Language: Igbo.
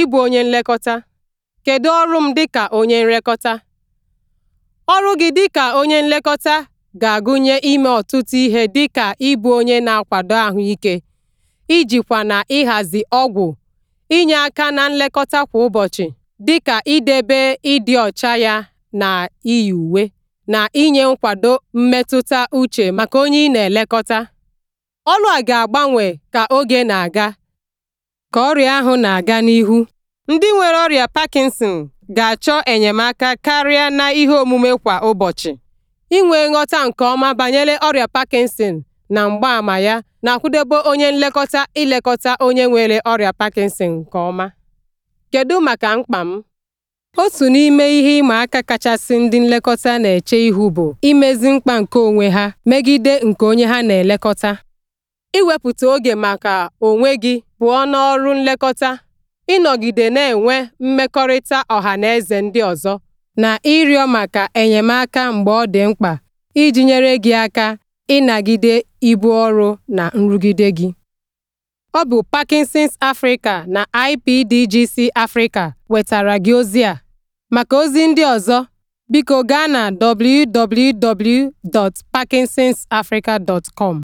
Ịbụ onye nlekọta kedu ọrụ m dịka onye nlekọta? Ọrụ gị dịka onye nlekọta ga-agụnye ime ọtụtụ ihe dịka ịbụ onye na-akwado ahụike, ijikwa na ịhazi ọgwụ, inye aka na nlekọta kwa ụbọchị dịka idebe ịdị ọcha ya na iyi uwe, na inye nkwado mmetụta uche maka onye ị na-elekọta. Ọrụ a ga-agbanwe ka oge na-aga. Ka ọrịa ahụ na-aga n'ihu, ndị nwere ọrịa Parkinson ga-achọ enyemaka karịa na ihe omume kwa ụbọchị. Inwe nghọta nke ọma banyere ọrịa Parkinson na mgbaama ya na-akwadebe onye nlekọta ilekọta onye nwere ọrịa Parkinson nke ọma. Kedu maka mkpa m? Otu n'ime ihe ịma aka kachasị ndị nlekọta na-eche ihu bụ imezi mkpa nke onwe ha megide nke onye ha na-elekọta. Iwepụta oge maka onwe gị pụọ n'ọrụ nlekọta, ịnọgide na-enwe mmekọrịta ọha na eze ndị ọzọ, na ịrịọ maka enyemaka mgbe ọ dị mkpa iji nyere gị aka ịnagide ibu ọrụ na nrụgide gị. Ọ bụ Parkinson's Africa na IPDGC Africa wetara gị ozi a. Maka ozi ndị ọzọ, biko gaa na www.parkinsonsafrica.com.